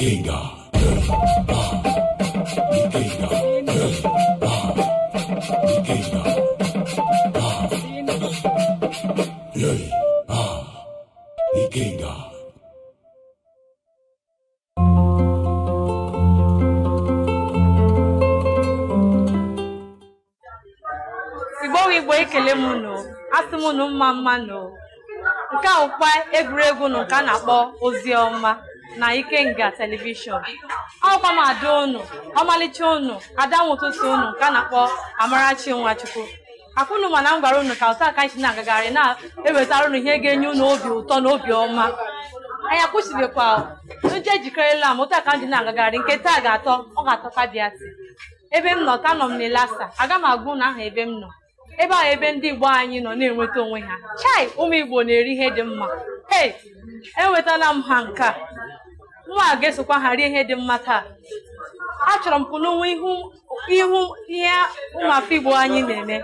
Gengar. ike Igbo ekele m nụ asị m nụ mma mma nụ nke a bụkwa egwuregwu nụ nke a na-akpọ ozi ọma na Ikenga telivishọn ọkwa m ada unu ọmalịcha unu ada ụtụtụ unu nke a na-akpọ Amarachi Nwachukwu akwụnụ mana m gwara unu ka ụta aka anyị na-agagharị na-ewetara unu ihe ga-enye unu obi ụtọ na obi ọma anyị akwụsịbịkwa nje ejikerela m ụta ka m na-agagharị nke taa ga-atọ ọ ga-atọkwa bịati ebe m nọ ta nọ m n'Ilasa. aga m agwụ ụnụ aha ebe m nọ ebe ahụ ebe ndị Igbo anyị nọ na-enweta onwe ha chai ụmụ Igbo na-eri ihe dị mma e enwetala m ha nke a nwa a ga-esokwa ha rie ihe dị mma taa achọrọ m kwụnụ ihu ihe ụmụafọ Igbo anyị na-eme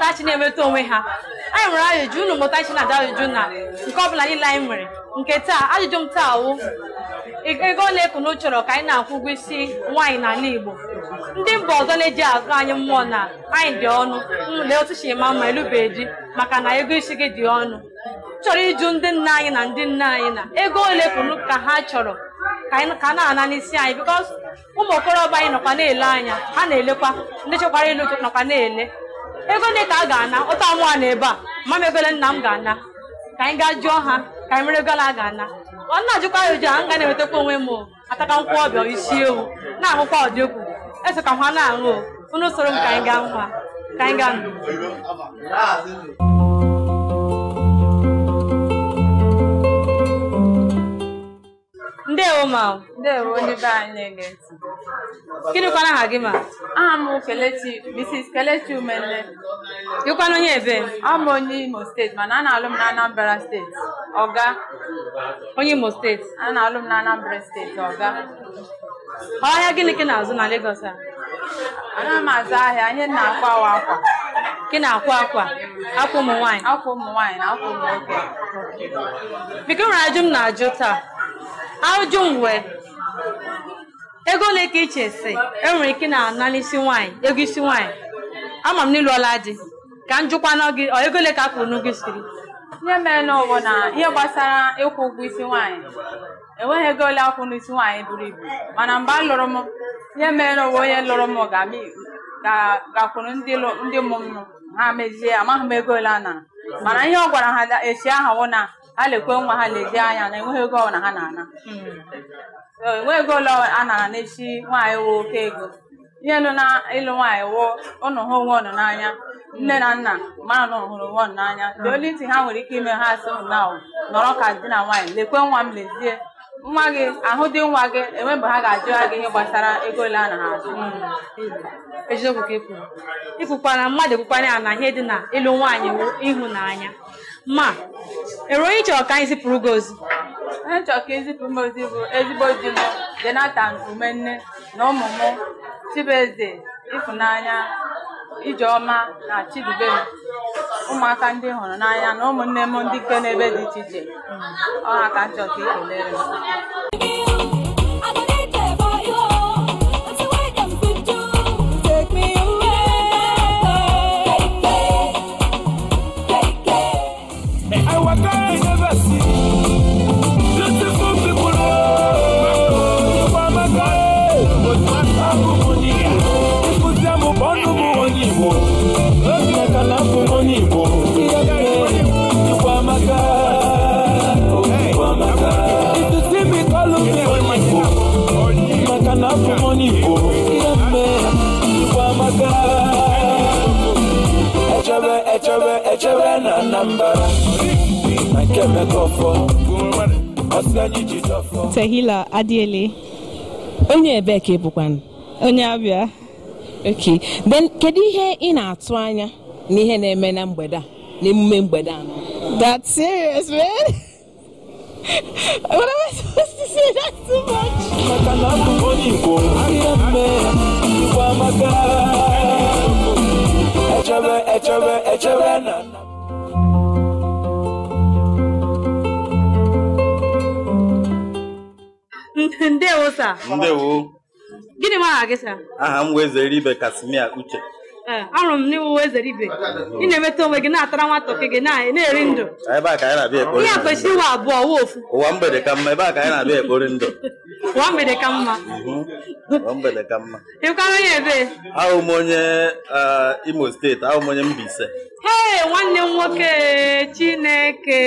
tachi na-enweta onwe ha anyị nwere ajụjụ unu mụta chi na-ada ajụjụ na nke ọbụla niile anyị nwere nke taa ajụjụ m taa wụ ego ole kunu chọrọ ka anyị na-akwụ ụgwọ isi nwaanyị n'ala Igbo ndị mba ọzọ na-eji agụ anyị mmụọ na anyị dị ọnụ lee otu chi ma mma elube maka na ego isi gị dị ọnụ chọrọ ịjụ ndị nna anyị na ndị nna anyị na ego ole pụrụ ka ha chọrọ ka a na-ana n'isi anyị bikọs ụmụ okorobịa anyị nọkwa na-ele anya ha na-elekwa ndị chekwara ilu nọkwa na-ele ego ndị ka a ga-ana ụta mụa na ebe a ma egole nna m ga-ana ka anyị gaa jụọ ha ka anyị mere egole ga-ana ọ na ajụkwa ya ụjọ nga ga na enwetekwa onwe m ataka nkwụ ọbịa isi ewu na ahụkwa ọdịegwu eso ka ha na-aṅụ unu soro m ka anyị gaa nwa ka anyị gaa ndewo ma ndewo onye be anyị na-ege gịnị kwana aha gị ma aha m Kelechi Mrs. Kelechi Umenle gịkwana onye ebe ọ bụ onye Imo steeti mana a na-alụ m na Anambra steeti oga. onye Imo steeti a na-alụ m na Anambra steeti oga. ọhịa gịnị ka na-azụ na Lagos a Anaghị m azụ ahịa ihe na-akwa awa akwa gị na-akwa akwa akwa ụmụ nwaanyị akwa ụmụ nwaanyị na akwa ụmụ nwoke biko nwere ajụ m na-ajụ taa ajụ mgbe ego ole ka iche si enwere ike na ana isi nwaanyị ego isi nwanyị, ama m ọla di ka m jụkwana gị ego ole ka a kwụrụ n'ugwu isiri ihe mere n'ụwa na ihe gbasara ịkwụ ụgwọ isi nwaanyị enweghị ego ole akwụ n'isi nwaanyị buru ibu mana mgbe a lụrụ m ihe mere n'ụwa onye lụrụ m ga akwụrụ ndị ụmụ ha mezie amaghị m ego ole a na-. mana ihe ọ gwara ha echi aha ahụ na ha lekwe nwa ha lezie anya na enweghị ego na ha na-ana enweghị ego ole a nara echi nwaanyị woo oke ego ihe lụ na ịlụ nwaanyị woo ụnụ ha onwe ụnụ n'anya nne na nna mara na hụrụ onwe ụnụ n'anya dị olu ha nwere ike ime ha asị ụnụ na nọrọ ka di na nwaanyị lekwe nwa m lezie nwa gị ahụ dị nwa gị enwe mgbe ha ga-ajụ gị ihe gbasara ego ole a nara azụ hmm. eziokwu ka mmadụ ekwukwara ya na ihe dị na ịlụ nwaanyị ịhụnanya ma ero ihe chọrọ ka anyị zipụrụ gị ozi onye chọrọ ka ịzipụrụ m ozi bụ ezigbo di m Jonathan Umenne na ụmụ m Chibueze Ịfụnanya Ijeọma na Chidubem ụmụaka ndị hụrụ n'anya na ụmụnne m ndị nke n'ebe dị iche iche ọ ha ka njọ ka ekelere m Tehila Adiele onye ebe ka ị onye abịa ok kedu ihe ị na-atụ anya na ihe na-eme na mgbede a na emume mgbede a that's serious man what am I supposed to say that's too much maka na abụ echebe echebe echebe na ndewo sa ndewo gịnị m aha gị sa aha m zere ibe kasimia uche ahụrụ m n'ịwụwa ezere ibe ị na-emeta onwe gị na-atara nwatọke gị na-eri ndụ ah, ihe a kwesịrị iwe abụọ wa ofu ụwa mgbede ka mma ebe a ka anyị na-abịa ekpori ndụ ụwa mgbede ka mma mhm. ụwa mgbede ka mma ịkwara onye ebe ahụ m onye eh, Imo steeti ahụ m onye Mbaise ee nwanne m nwoke Chineke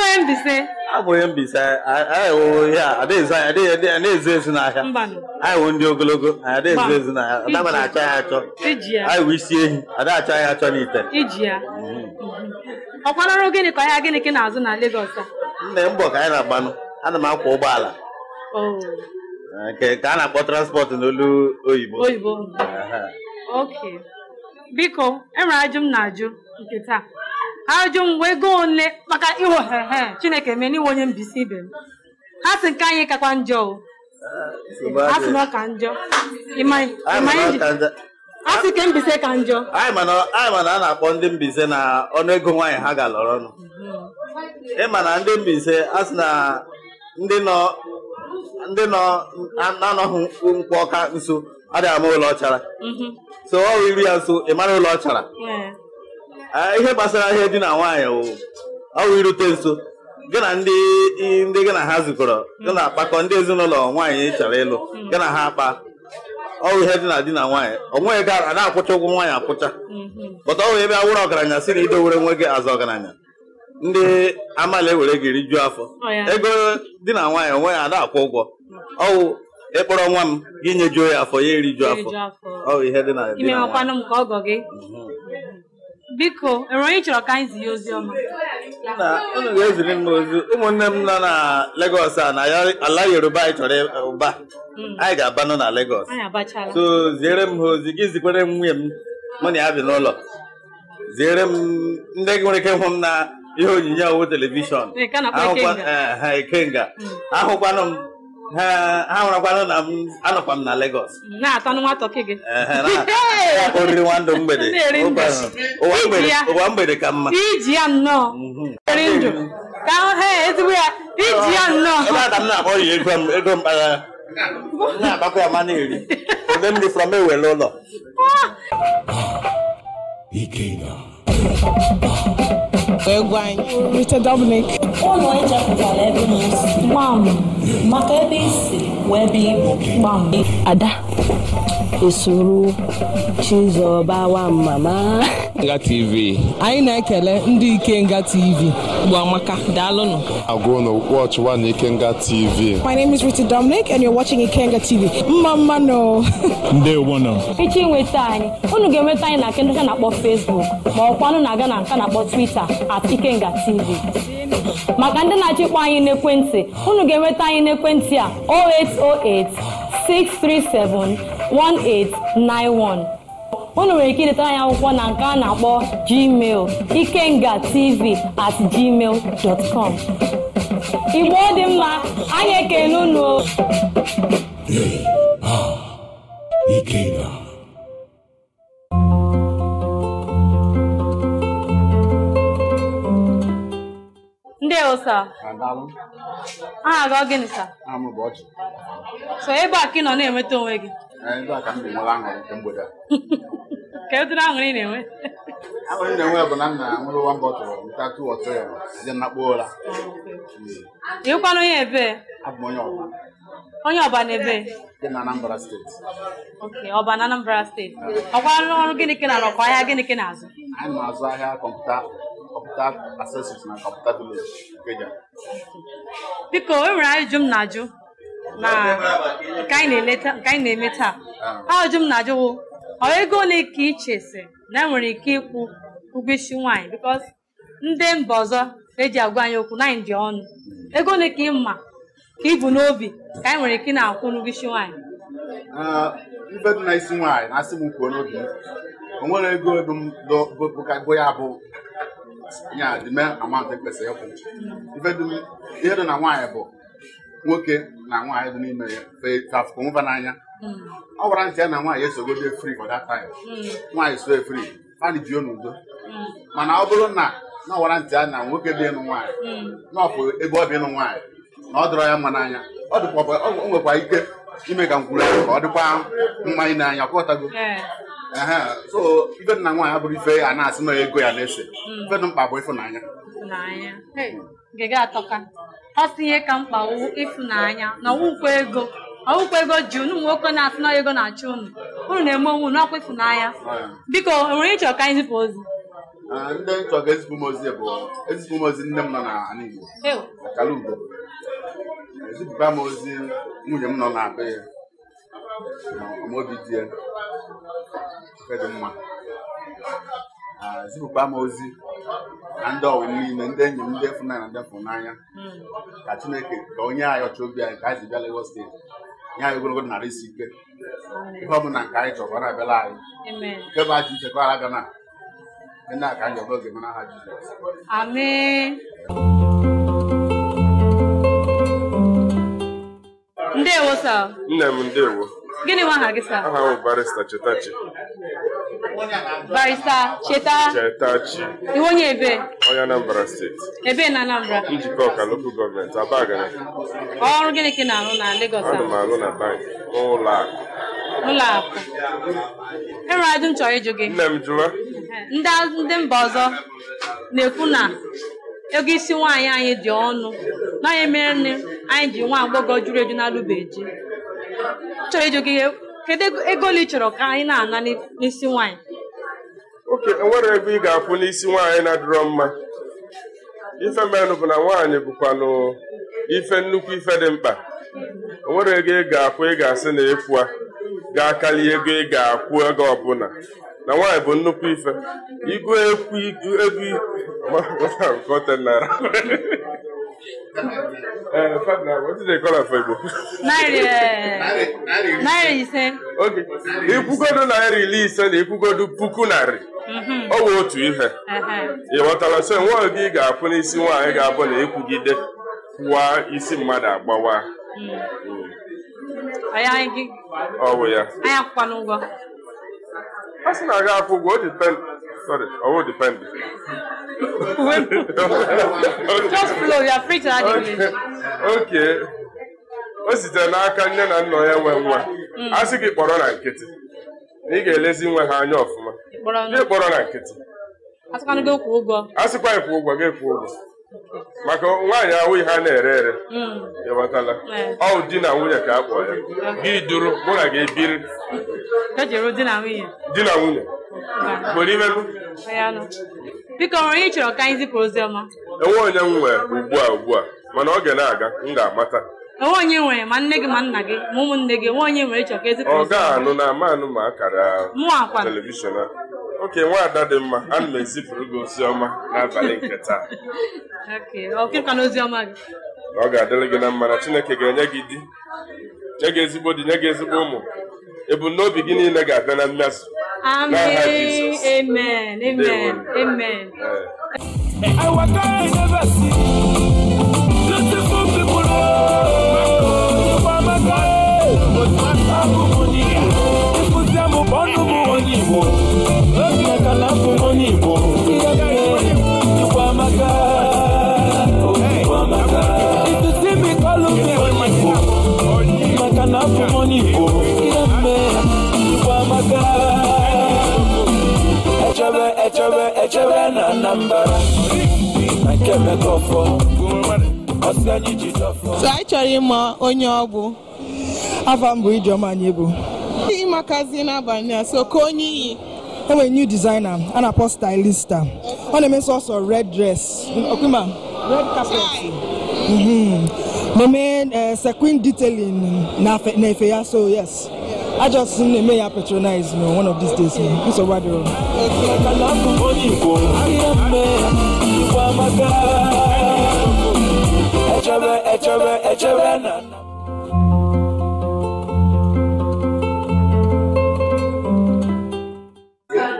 onye Mbaise abụghị Mbaise anyị wụ ihe a na-ezu ezu n'ahịa anyị wụ ndị ogologo anyị na-ezu ezu n'ahịa dama na-achọ ya achọ anyị wee isi ehi adacha ya achọ n'ite iji ya mhm. ọkwanọrụ gịnị ka ahịa gịnị ka ị na-azụ na Lagos a nna mbọ ka anyị na-agbanụ ana m akwọ ụgbọala nke eh, ka a na-akpọ transport n'olu oyibo oyibo oke biko enwere ajụ m na-ajụ nke taa ajụ m wee goo ole maka ịhụ hehe Chineke mee n'inwe onye mbisi ibe m ha sị nke anyị kakwa njọ o eh, ha sị na ọ ka njọ asị ke Mbaise ka njọ anyị mana a na-akpọ ndị Mbaise na ọnụego nwaanyị ha ga-alọrọ ọnụ mhm. ịma na ndị Mbaise asị na ndị nọ ndị nọ na-anọghị nkwụ ọka nso adịghị ama ụlọ ọchara mhm. so ọ iri ya nso ị mara ụlọ ọchara ihe gbasara ihe dị na nwaanyị ọwụ irute nso gị na ndị ndị gị na ha zukọrọ gị na-akpakọ ndị ezinụlọ nwaanyị chọrọ ịlụ mhm. gị na ha akpa ọrụ ihe dị na di na nwaanyị ọ nweghị ego a na-akwụcha ụgwọ nwaanyị akwụcha pọta mhm. ọrụ ebe awụrụ ọgaranya si na idowere nwe gị azụ ọgaranya ndị amala ewere gị rijuo afọ ego di na nwaanyị onwe ya na-akwụ ụgwọ ọwụ ịkpọrọ nwa m gị nyejuo ya afọ ya erijuo afọ ọwụ ihe dị na di na nwaanyị biko enwere onye chọrọ ka anyị zie ozi ọma unu ga-eziri m ozi ụmụnne m nọ na legos a na ala Yoruba anyị chọrọ ụba mm. anyị ga-abanụ na legos so ziere m ha ozi gị zikwere m nwunye m mụ na ya bi n'ụlọ ziere m ndị nwere ike hụ m na ihe onyinye owu telivishọn eh, mm. ahụkwanụ m ha hụrakwana na m anọkwa m na Lagos na nwa tọki gị oriri nwa mgbede ụwa mgbede ka mma iji ya nnọọ mhm. ndụ ka ha ezigbo ya iji ya nnọọ ebe a ka m na-akpọ ya ego m ego mkpagha na-agbakwa ya mana eri ode m dị from ewele ụlọ ah! Ah, Egwany. Richard Dominic. Ụlọ ije pụtara ebe m si. Maka ebe i wee ebe Ada. Isuru Chizoba mama. Nga TV. Anyị na-ekele ndị Ikenga TV. Gbamaka, daalụnụ. Agụnụ, watch one Ikenga TV. My name is Rita Dominic and you're watching Ikenga TV. Mma mma no. Ndewo no. Echi nweta anyị. Unu ga-enweta anyị na nke ndị na-akpọ Facebook ma ọkwa nụ na-aga na nka na-akpọ Twitter at Ikenga TV. Maka ndị na-achịkpọ anyị n'ekwentị, unu ga-enweta anyị n'ekwentị a 0808 637 1891 unu nwere ike idetara anyị akwụkwọ na nke a na-akpọ gmail ikenga tv at gmail dot com igbo dị mma anyị ekele unu ndị ụsa aha gị ọ gịnị so ebe a ka ị nọ na-enweta onwe gị ndị a ka m ga nke mgbede a ka ụdịrị aṅụrị na-enwe na-enwe bụ na m na-aṅụrụ ya na kpoo ụra onye ebe m onye ọba onye ọba na-ebe dị na Anambra steeti oke ọba na Anambra steeti ọkwalụ ọrụ gịnị na ahịa gịnị na-azụ anyị na-azụ ahịa kọmputa kọmputa na kọmputa Biko, e nwere na nke anyị na-eme taa ajụjụ ah. m na-ajụwo ọ ego ole ka ị chesi na enwere ike ịkwụ ụgwọ isi nwaanyị bikos ndị mba ọzọ eji agwa anyị okwu na anyị dị ọnụ hmm. ego ole ka ị ma ka ị n'obi ka anyị e nwere ike na-akwụ n'ụgwọ isi nwaanyị ah, ife dị na isi nwaanyị na-asị m kwuo n'obi o nwere ego ego m bụkago ya bụ ya dịme amant e kwesịrị ịkwụ hmm. ihe dị na nwaanyị bụ nwoke na nwaanyị dị n'ime ya fetafụkọnwụba n'anya mm. ọ gwara ntị ya na nwaanyị esogodi efri for mm. nwaanyị so efri fani ji n'udo mm. mana ọ bụrụ na na ọgwara ntị ya na nwoke dị ịnụ nwaanyị na ebe ọ bụ ịnụ nwaanyị na ọ dịrọ ya mma n'anya ọ nwekwa ike ime ka nkwuru ka ọ dịkwa mmanya n'anya ọkọtago so ibe na nwaanyị abụrụ ife a na-asị na ego ya na-ese ife dị mkpa bụ ịfụnanya ọsọ ihe ka mkpa wu ịfụnanya na ọwụkwa ego ọwụkwa ego ji unu ụmụ nwoke na-atụna ego na-achụ unu unu na-eme onwe unu ọkwa ịfụnanya biko nwere ịchọ ka anyị ozi ah, ndị nchọ ga-ezipụ m ozi bụ ezipụ m ozi nne m nọ n'ala Igbo akala ugo ezipụta m ozi nwunye m nọ na be ya ma obi dị ya dị mma zipụkwa m ozi na ndị ọwụ niile ndị enyi m ndị fụnanya ndị fụnanya ka Chineke ka onye anyị ọchọ obi anyị ka anyị zibịa Lagos steeti nye anyị ogologo narị isi ike ihe ọ bụla nke anyị chọrọ na-abịala anyị nke bụ aji uche ka ara gana nna ka anyị ọbụla mara aha Jizọs ndewo sir nne m ndewo gịnị nwa aha gị sa aha bụ barista chetachi barista cheta chetachi iwe onye ebe onye anambra steeti ebe na anambra njikọ ọka lokal gọọmenti abagana ọrụ gịnị ka ị na-arụ na Lagos ana m arụ na bankị n'ụlọ akụ ụlọ akụ enwere ajụ m chọrọ ịjụ gị nne m jụwa ndị mba ọzọ na-ekwu na ego isi nwaanyị anyị dị ọnụ na onye mere nne anyị ji nwa agbọghọ juru eju na alụbeji chọrọ ịjụ gị kedu ego ole ị chọrọ ka anyị na-ana n'isi nwaanyị oke ego ị ga-akwụ n'isi nwaanyị na-adịrọ mma ife mmenụ bụ na nwaanyị bụkwanụ ife nnukwu ife dị mkpa onwere ego ị ga-akwụ ị ga-asị na ịkwụa ga-akarị ego ị ga-akwụ ego ọbụla na nwaanyị bụ nnukwu ife igụ ekwu ego Uh, Naira. ise. Ikwugodu ile ise na ikwugodu puku narị. Mm-hmm. Ọ bụ otu ihe. Uh-huh. Ị ghọtara so nwa gị ga-akwụ n'isi nwaanyị ga-abụ na ịkwụgide kwụwa isi mmadụ agbawa. Mm-hmm. Just flow, you are free to add English. Okay. o sitere n'aka nne na nna ya nwe nwa hmm. a sị gị kpọrọ na nkịtị na ị ga-elezi nwe ha anya ọfụma gị kpọrọ na nkịtị a sịkwa ịkwụ ụgwọ gị kwụ ụgwọ maka nwaanyị ahụ ihe a na-ere ere hmm. ịghọtala eh. ọ di na nwunye ka a kpọọ ya gị duru mụ na gị biri e di na nwunye nwere hmm. imelu biko nwere onye chọrọ ka anyị zipụ ozi ọma enwe onye m nwee ugbu a ugbu a mana ọ ga na-aga m ga-amata enwe onye nwere ma nne gị ma nna gị ma ụmụnne gị enwe onye nwere chọrọ ka ezipụ ozi ọ ga-anụ na ama anụ ma akara telivishọn a oke nwaada dị mma ana m ezipụrụ gị ozi ọma n'abalị nke taa gị. ọ ga-adịrị gị na mma na Chineke ga-enye gị di nye gị ezigbo di nye gị ezigbo ụmụ ebumnobi gị niile ga-abịa na mmezu amen amen amen na Anambra na nke mekọfọ ọsị anyị ji dọfọ so anyị chọrọ ịma onye ọ bụ afa m bụ Ijeọma Anyịbụ n'abalị a so ka onye iyi enwere new designer a na-akpọ stylista ọ na-eme sọsọ red dress okwima red carpet mhm. na-eme eh, sequin detailing na efe ya so yes I just may I patronize me one of these days. Me. So what do?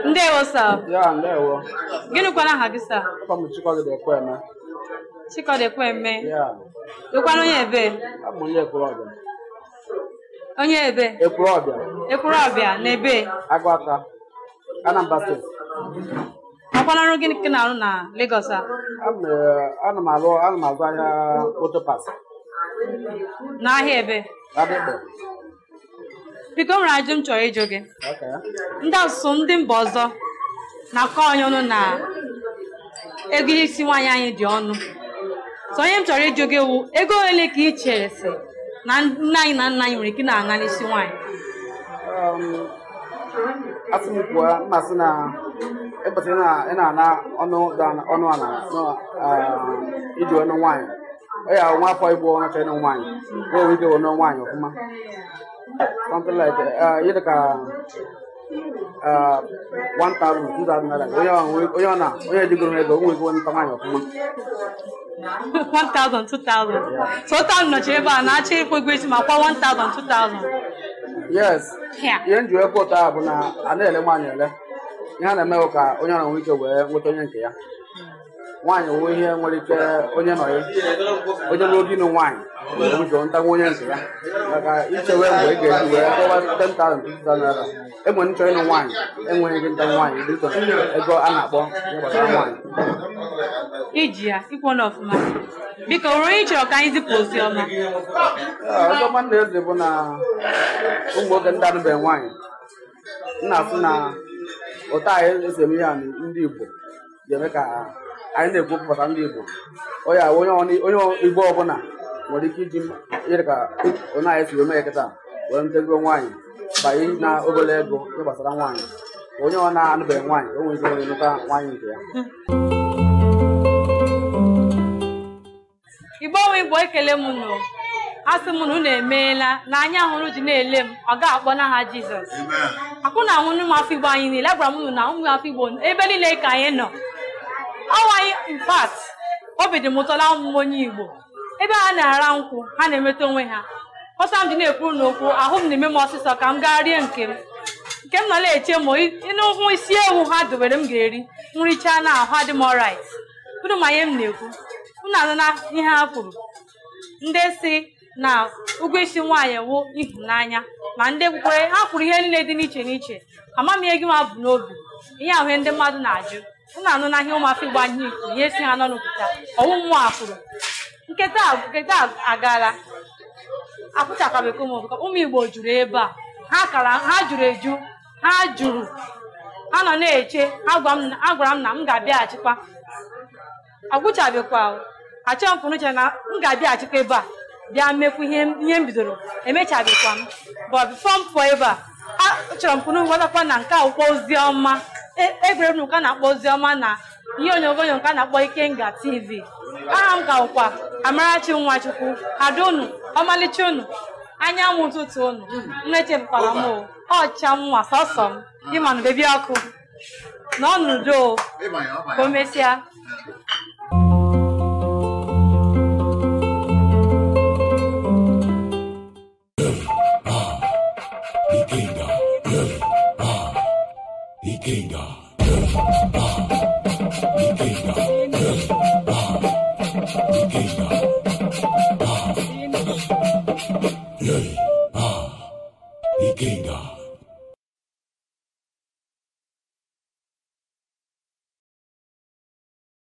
Ndewo sir. Yeah, ndewo. Gịnị kwana aha gị sir? Papa m eme Ekweme. Chikọdị eme Yeah. Ịkwana onye ebe? Abụ m onye Ekwere ọbịa. onye ebe ekwuru ọbịa ekwuru ọbịa na ebe agụ Anambra steeti ọkwala ọrụ gịnị ka na-arụ na Lagos a eh, ana m arụ ana m azụ ahịa otopas n'ahịa ebe biko nwere ajụ m chọrọ ịjụ gị ndị asụsụ ndị mba ọzọ na-akọ onye ọnụ na ego isi nwaanyị anyị dị ọnụ so onye m chọrọ ịjụ gị wụ ego ole ka ị chere si na nne anyị na nna anyị nwere ike na-aṅa n'isi nwaanyị asị m na mmasị na ekwesịrị ị na-ana ọnụ ọnụ ala iji ọnụ nwaanyị ọ ya nwa afọ ịbụ ọnụ ịnụ nwaanyị o nwere ọnụ nwaanyị ọfụma something like onye jigoro ego o nwegoro nta nwaanyị ọfụma 1000 2000 so nọchi ebe a na-achọ ịkwụ ụgwọ isi ma kwa 1000 2000 yes ihe njiwe kwụ ụtọ bụ na a na-ele nwaanyị ele ihe a na-emewụ ka onye ọra nwee ike wee nweta onye nke ya nwaanyị owuwe ihe nwere ike onye nọ ya onye nwe oge ịnụ nwaanyị ụjọ ntanwe onye nke ya maka ichewe mgbe ị ga-eji wee kọwa 10,000 naira enwe nchọ ịnụ nwaanyị enweghị gị ntanwe nwaanyị dị chọrọ ego a na-akpọ gbasara nwaanyị iji ya sikwana ọfụma biko ruo ị chọrọ ka anyị zipụ ozi ọma ah, ọzọma nna eze bụ na ụmụ oge ndị anụbeghị nwaanyị nna afụ na ụta anyị esi eme ihe ndị Igbo ga-eme ka anyị na-ekwupụta ndị Igbo onye Igbo ọbụla nwere ike iji yere ka onye anyị siri mee kịta wee ntego nwaanyị banye na obere ego ihe gbasara nwaanyị onye ọ na-anụbeghị nwaanyị o nwere ike onye nụta nwaanyị nke ya Igbo onwe Igbo ekele m nụ asị m na unu emeela na anya hụrụ ji na-ele m ọ ga-akpọ n'aha Jizọs akwụ na nwụnụ ụmụafọ Igbo anyị niile agwara m unu na ụmụafọ Igbo ebe niile ka anyị nọ awaghị mpat obi dị m ụtọ na onye igbo ebe ha na-ara nkwụ ha na-emeta onwe ha ọsọ m dị na-ekwuru n'okwu ahụ m na-eme m ọsịsọ ka m gaa rie nke m nke m nọ na-eche ma n'ụkwụ isi ewu ha dobere m ga-eri nricha na ahụ adị m ọrait unu ma ihe m na-ekwu unu anụna ihe ha kwuru ndị si na ụgwọ isi nwaanyị wụ ịhụnanya ma ndị kwukwere ha kwuru ihe niile dị n'iche n'iche amamihe gị ma bụ n'obi ihe ahụ ndị mmadụ na-ajụ na anụ n'ahịa ụmụafọ igbo anyị ifuru ihe si ha n'ọnụ pụta ọwụ a afụrụ nketa nketa agala akpụchakabekọ m ụmụ igbo juru ebe a ha kara ha juru eju ha juru ha nọ na-eche ha gwara m na m ga-abịaghachikwa agwụchabekwa achọghị m pụrụ chere na m ga-abịaghachikwa ebe a bịa mmekwu ihe m bidoro emechabekwa m but before m pụọ ebe a chọrọ m pụrụ gwatakwa na nke akwụkwọ ozi ọma egwuregwu e nke a na-akpọ ozi ọma na ihe onyonyo nke na-akpọ ike nga tv aha m ka ụkwa amarachi nwachukwu ada unu ọmalịcha unu anyanwụ ụtụtụ unu na-echepụtara m ọcha nwa sọsọ m ịmanụ bebi ọkụ na ọnụdo ka o King God.